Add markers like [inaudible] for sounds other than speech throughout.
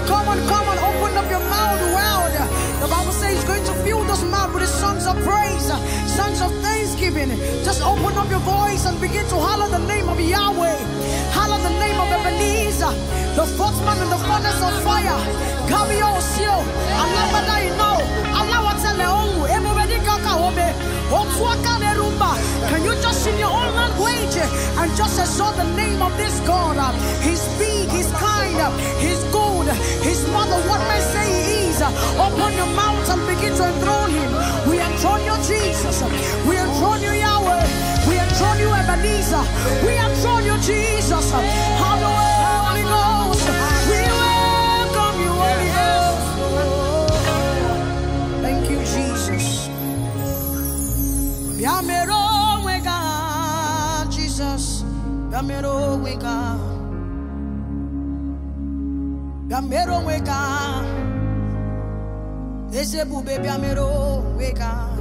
on, come on, come on. Open up your mouth well The Bible says he's going to fill this mouth with his songs of praise, songs of thanksgiving. Just open up your voice and begin to holler the name of Yahweh. Holler the name of Ebenezer, the man in the furnace of fire. Come, yo, Allah, Allah, you know. Allah, what's Can you just in your own language and just exalt the name of this God? He's big, He's kind, He's good, He's mother, what may say He is. Open your mouth and begin to enthrone Him. We enthrone you, Jesus. We enthrone you, Yahweh. We enthrone you, Ebenezer. We enthrone you, Jesus. bịamere onwe ka! ahụ bịamere onwe ka! ahụ eze ebube onwe ka! ahụ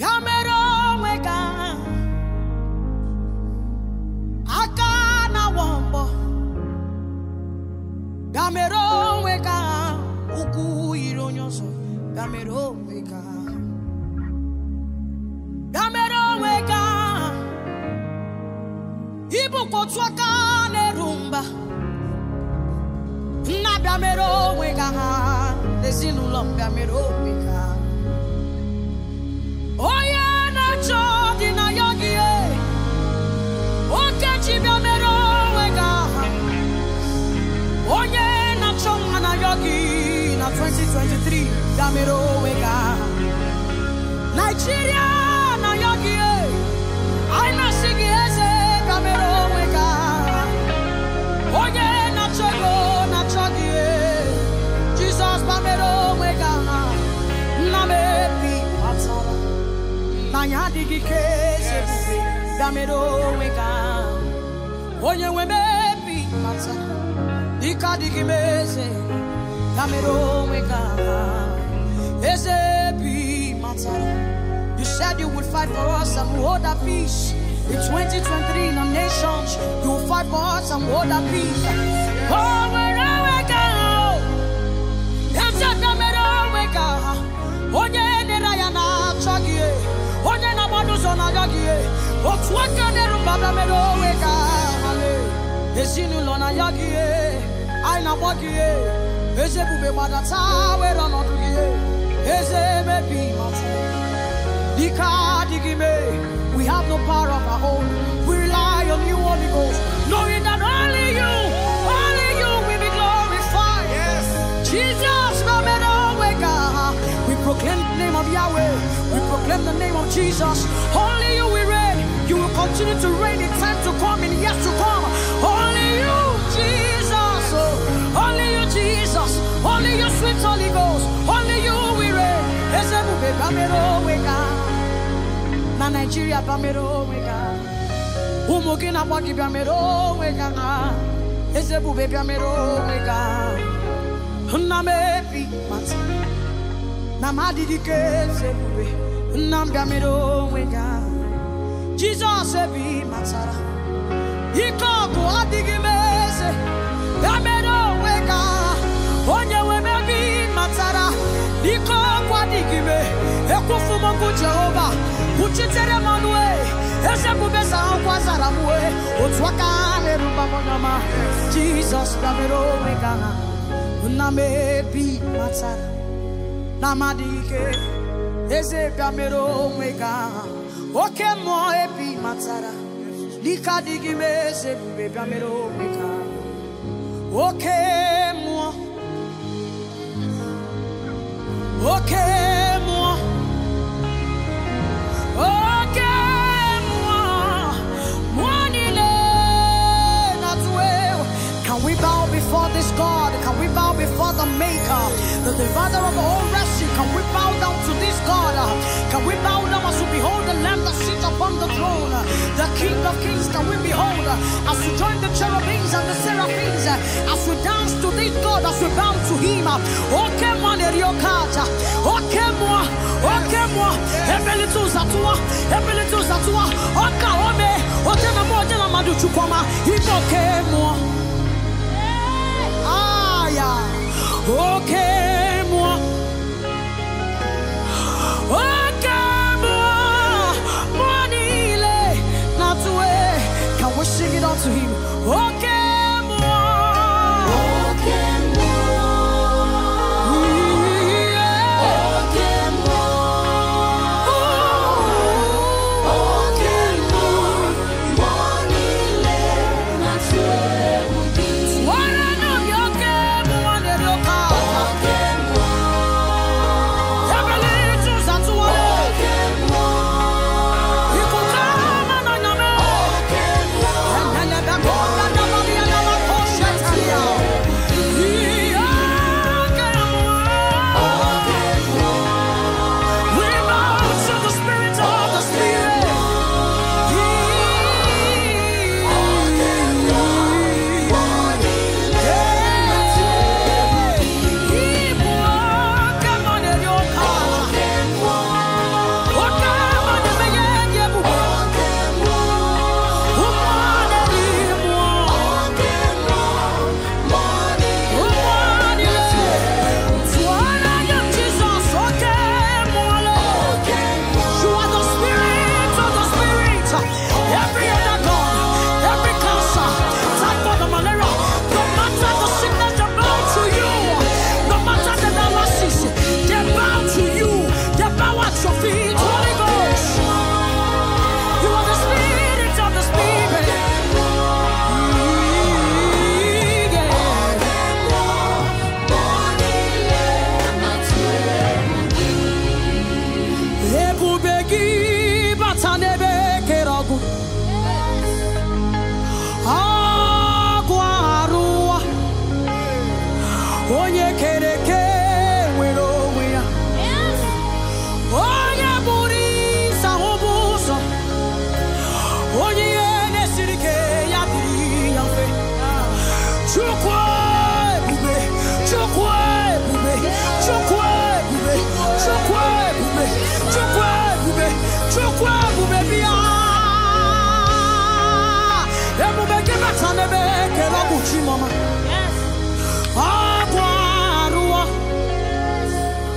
bịamere onwe ka! aka na-awọ mbọ bịamere onwe ka! ahụ ụkwụ yiri onye ọzọ onwe ka! kwọtu aka na-eru mba nna bịa mere onwe ga ha n'ezinụlọ mbịa mere onwe ga onye na-achọ dị na ya gị e, oke ji bịa mere onwe ga ha onye na-achọ nwa na ya gị na 2023 bịa mere onwe ga ha Nigeria anyị adịghị ike eze ebube ya mere onwe ka onye nwe mebi mata dike adịghị m eze ya mere onwe ka eze bi mata You said you would fight for us and hold our peace. In 2023, in our nations, you will fight for us and hold our peace. Always. otu aka na-erubada mere onwe ka hale ezinụlọ na ya gị anyị na-agba gị eze ebube gbadata were ọnọdụ gị eze mebi matụ dike adịghị mee we have no power of our own will rely on you Holy Ghost knowing that only you only you will be glorified yes. Jesus no matter where God we proclaim the name of Yahweh we proclaim the name of Jesus only you we You will continue to reign in time to come and years to come. Only you, Jesus. oh. Only you, Jesus. Only you, sweet Holy Ghost. Only you, we reign. Ezebube onwe wega. Na Nigeria bamero wega. Ụmụ gị na-agba gị bịamero wega na. Ezebube onwe wega. Nna m ebi mata. Na ma adịghị ka ezebube. Nna m onwe wega. jizọs ebe ị matara ike ọgụ adịghị m eze ya mere onwe ga onye nwere ebe ị matara ike ọgụ adịghị e. ekwufu m jehova kwuchitere m ọnụ e. eze bubeza nkwa zara m wee otu aka ha na-eruba m n'ọma jizọs ya mere onwe ga na m ebe ike eze bịamere onwe gị oke mmụọ ebi matara n'ike adịghị m eze ebube bịamere onwe gị oke mmụọ oke mmụọ oke mmụọ mmụọ niile na-atụ egwu can we bow before this God can we bow before the maker the divider of all rest God. Can we bow down as we behold the Lamb that sits upon the throne? The King of Kings, can we behold? As we join the cherubims and the seraphims, as we dance to this God, as we bow to Him. Okay, Oka ekele ọ bụ chi mama ọbụ arụọ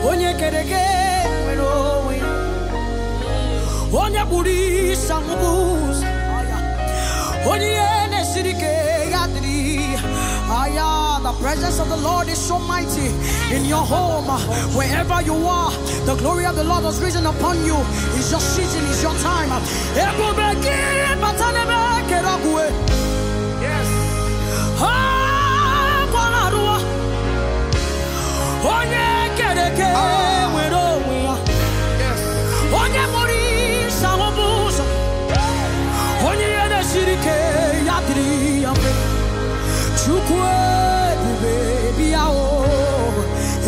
onye kere gị nwere onwe onye kpụrụ isa ụzọ onye ihe na-esiri ya dịrị aya The presence of the Lord is so mighty in your home, wherever you are. The glory of the Lord has risen upon you. It's your season, it's your time. Onye onye ya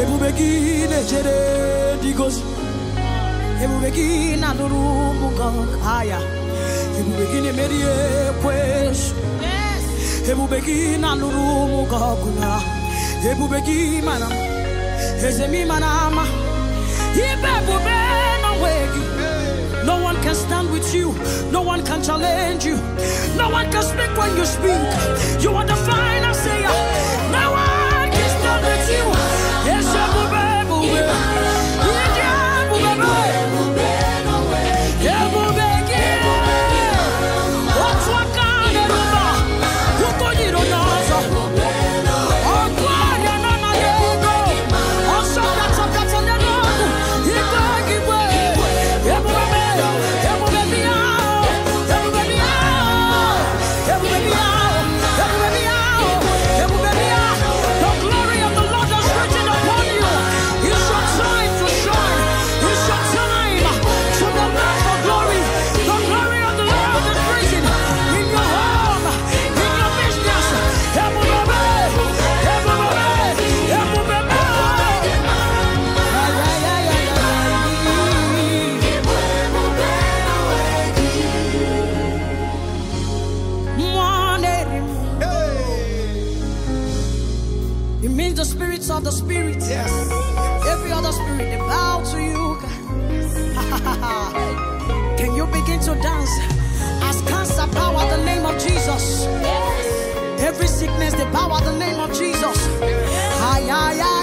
ebube gị na-echere dị gozi ebube gị na-anụrụ ụmụ ahịa ebube gị na-emeri ebube gị na alụrụ ụmụ gị ọgụ na ebube gị mana Eze na manama. Ibe bube na No one can stand with you. No one can challenge you. No one can speak when you speak. You are the final say. No one can stand with you. other spirit. Yes. Every other spirit, they bow to you. [laughs] Can you begin to dance? As cancer power the name of Jesus. Yes. Every sickness, they power the name of Jesus. Yes.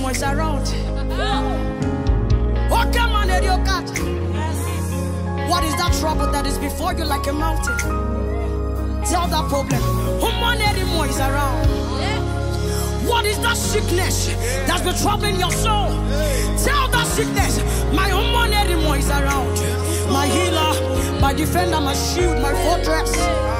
them is around. Oh, come on, God. What is that trouble that is before you like a mountain? Tell that problem. Human anymore is around. What is that sickness that's been troubling your soul? Tell that sickness, my human anymore is around. My healer, my defender, my shield, my fortress.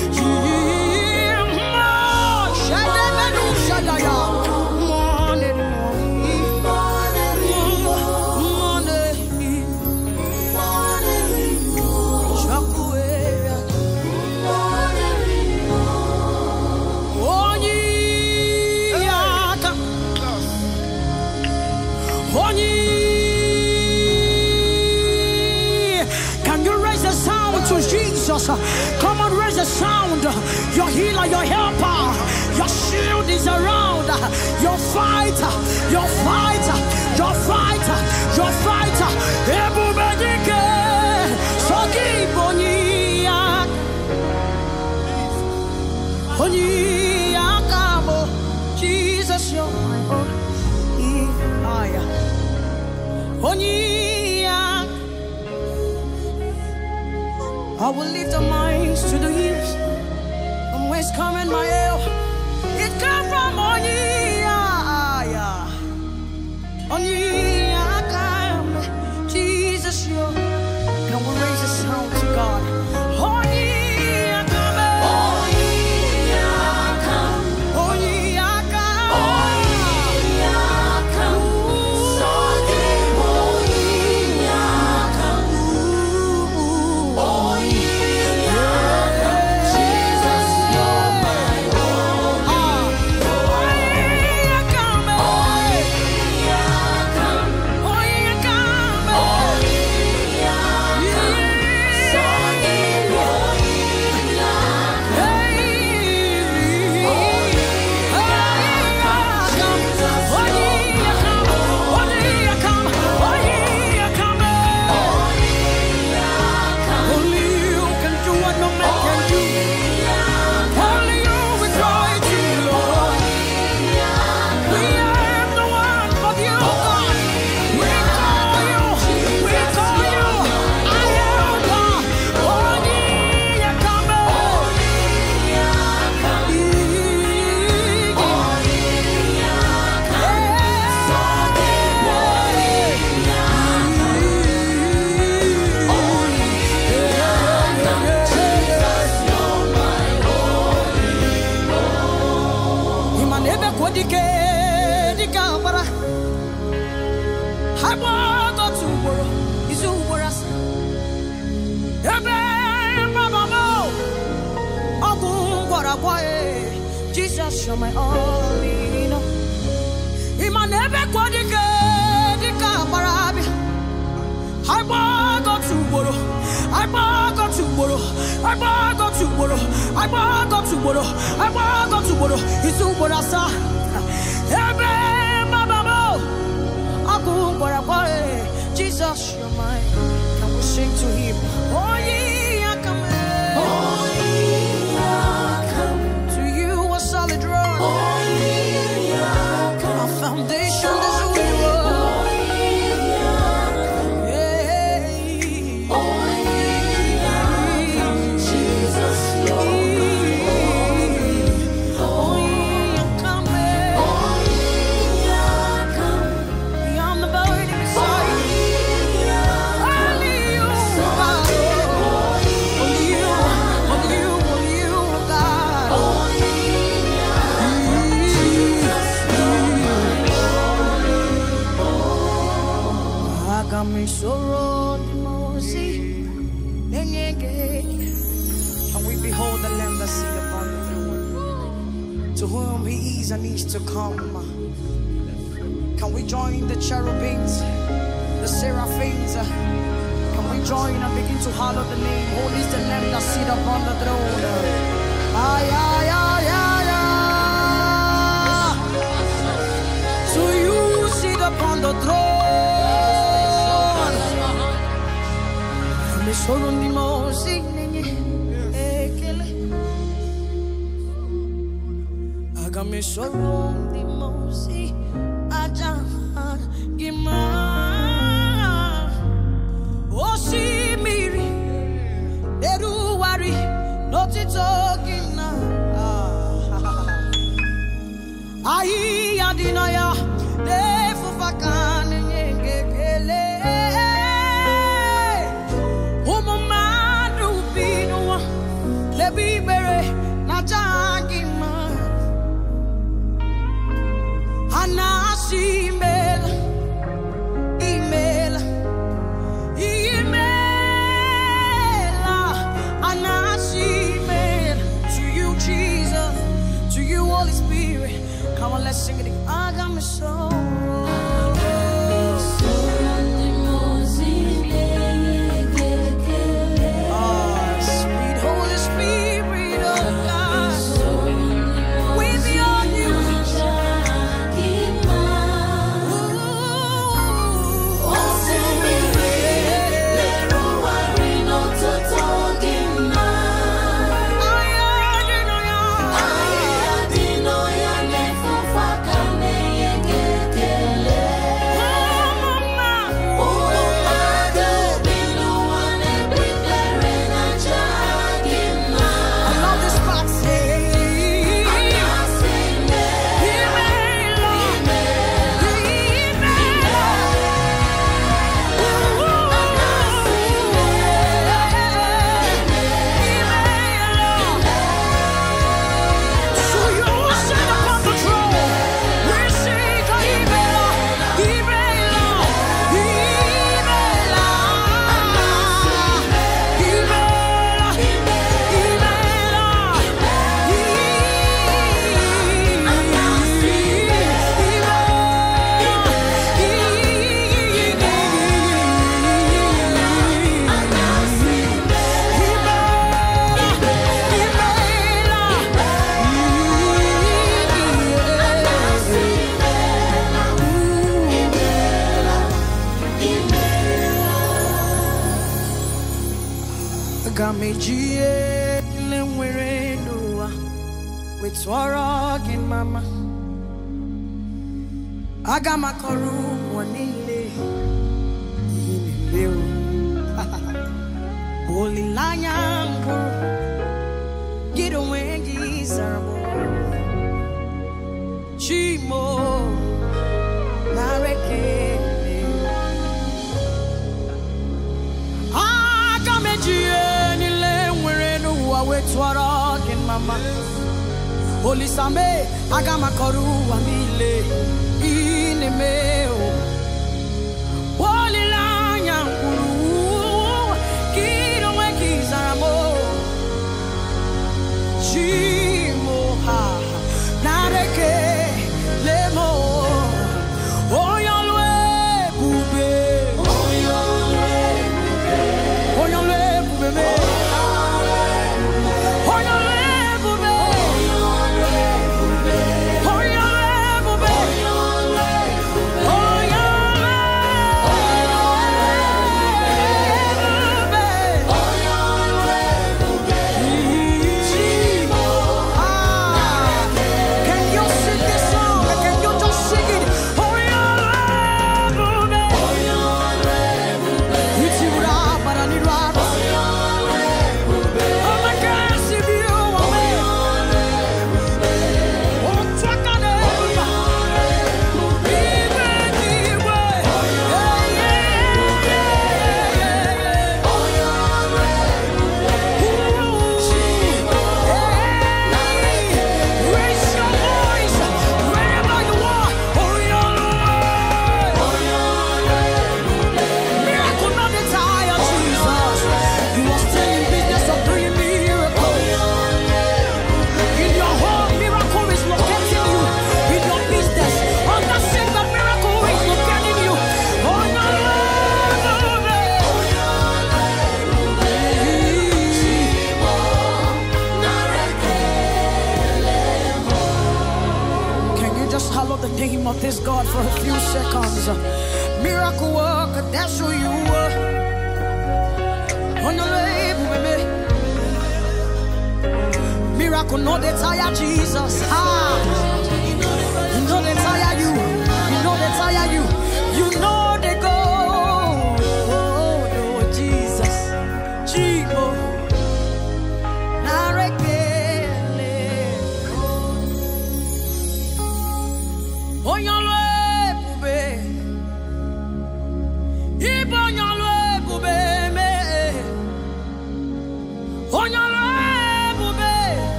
I will lift up my eyes to the hills. From whence coming my help? It come from on ye, yeah, on ye. agwaghị Jesus you're my all in all ị ma na ebe kwa dịka dịka gbara abịa agbagọtụ ugboro ugboro to ugboro agbagọtụ ugboro ugboro isi ugboro asaa ebe mababo ọkụ gwara gwaghị Jesus you're my I will sing to him oh, Come solo n'ime ozi ekele aga m ndị mmụọ aja gị osimiri n'ọtụtụ gị ahịhịa blessing. It. I got me so. aga m akọrọ niile ihe na [laughs] olileanya mbụ gị onwe gị zara m chimo na ekele aga m eji ihe niile nwere n'ụwa wee tụọrọ gị mama olisame aga m akọrọ ụwa niile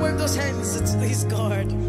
work those hands. It's, he's God.